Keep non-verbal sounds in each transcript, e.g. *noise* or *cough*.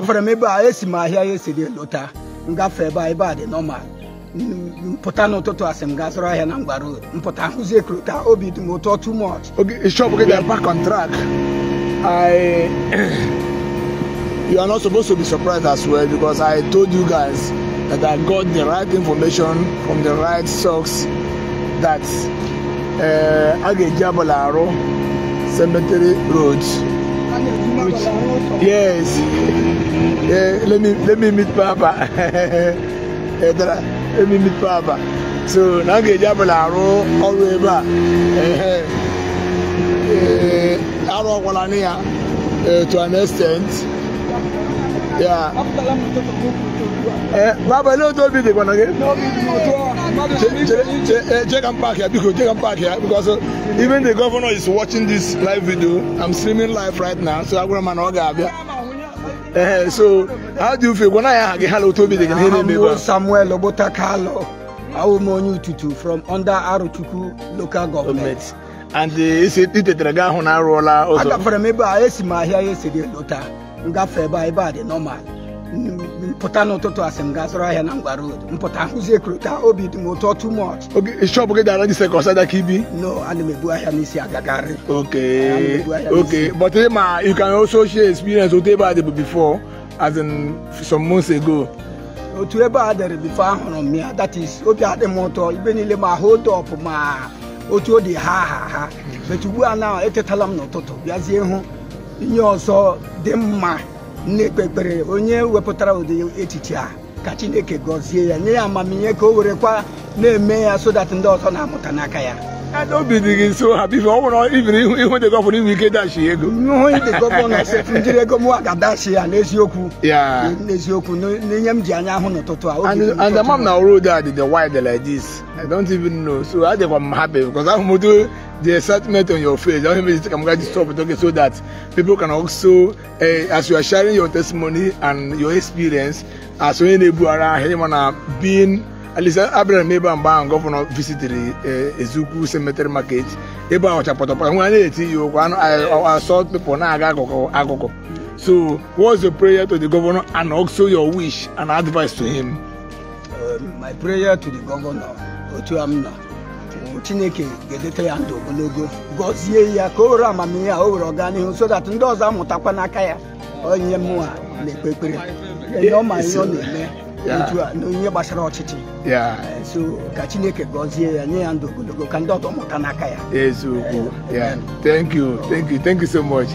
gafere m ebe a esi m ahịa ya esiri lụta ngafe ebe a ebe a dị mpụta n'ụtụtụ asị gaa zụrụ ahịa na mgba road mpụta hụzie krota obi dị m ụtọ too much e shop gị dị back on track I you are not supposed to be surprised as well because I told you guys that I got the right information from the right source that uh, eh, a ga-eji abụla arụ cemetery road rich. Yes. Yeah, eh, let me let me meet Papa. *laughs* Eh, let me meet Papa. So now get Jabala all the way back. Eh, Arrow Walania to an extent. ya eh, baba n'otu obi dịkwa na gị check eh, and park ya biko check and park ya because uh, even the governor is watching this live video i'm streaming live right now so agwara m na ọ ga-abịa ee so how do you feel gwana ya aha gị ha na otu obi dị gị ihe na-eme ebe Samuel Ogbota Kalọ awụ m onye ututu from under Arochukwu local government and itetere gị ahụ na arụọla ụzọ agafere m ebe a esi m ahịa ya esiri lota m gafee ebe a ebe a dị nọmal mpụta n'ụtụtụ asị m gaa zụrụ ahịa na ngwa road mpụta hụzie ekurota obi dị m ụtọ too much e shop gị dara jise ka ọsada ka ibi no ana m ebu ahịa n'isi agagharị okay okay but eh, ma you can also share experience otu ebe a dịbụ before as in some months ago otu ebe a dịrị bifo ahụrụ m ya that is obi adị m ụtọ ibe niile ma hold up ma otu ọ dị ha ha ha bet ugbu a na etetala m n'ụtụtụ bịazie hụ ihe ọzọ dị mma na-ekpe ekpere onye wepụtara ụdị echiche a ka chineke gọzie ya nye ya amamihe ka o were kwa na-eme ya so that ndị ọzọ na-amụta n'aka ya obi dị gị nso ha bife ọ nwere ibiri ihu dị gọvanọ inwe ike dashi ego ihu dị gọvanọ sefu njiri ego mụwa ga-adashi ya n'eziokwu n'eziokwu n'ihe m ji anya ahụ n'ụtụtụ a and amam na road a dị the wide like this i don't even know so adịkwa m happy because ahụ m the excitement on your face. I That means I'm going to stop talking so that people can also, uh, as you are sharing your testimony and your experience, as we enable around anyone being. At least Abraham ebe mgbe ahụ gọvanọ visitiri Ezukwu Cemetery Market ebe ahụ chapọtọpọtọ nwa na-eti ya okwu asọ people na-aga akụkụ akụkụ. So what's your prayer to the governor and also your wish and advice to him? Um, my prayer to the governor, Otu Amna. chineke ga-edote ya ndụ ogologo gọzie ya ka o were amamihe a o were ọganihu so dat ndị ọzọ amụtakwa n'aka ya onye mụnwa na-ekpe ekpere ọ ma ihe ọ na-eme Yeah. Uh, so ka gọzie thank you thank you thank you so much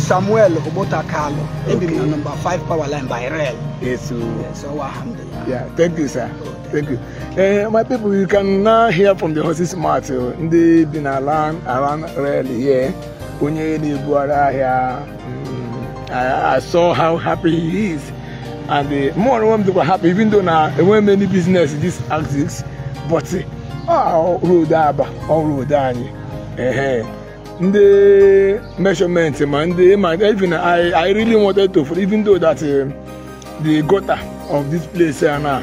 samuel 5 power line by rail yeah thank you sir thank you uh, my people you can now hear from the horses eh, around around rail here I, I saw how happy he is. And uh, more of them were happy, even though now there weren't many business in this axis. But uh, road ah, aba, all road anyị. Uh-huh. Ndị measurement ma ndị ma even I, I really wanted to, even though that uh, the gutter of this place uh, now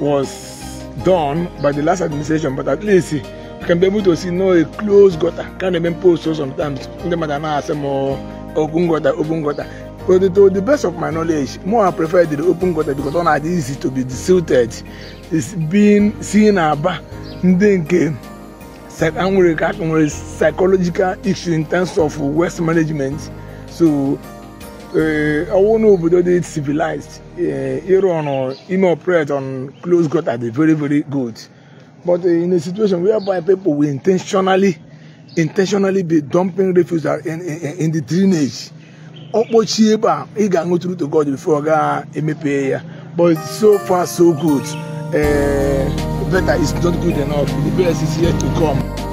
was done by the last administration, but at least uh, you can be able to see no a closed gutter. Can't even post so sometimes. Ndị mmadụ anaghị asị m open gutter open gutter but to the best of my knowledge more i prefer the open gutter because ọ na-adị easy to be silted is being seen aba ndị nke nwere ka aka psychological issue in terms of waste management so eh, ọwụ na obodo dị civilized eh, ịrụ on ime operate on closed gutter they're very very good but in a situation whereby people will intentionally intentionally be dumping refuse in, in, in the drainage ọkpọchie ebe a ị ga-aṅụ tru to God before ọ gaa emepe ya but so far so good uh, better is not good enough the best is yet to come.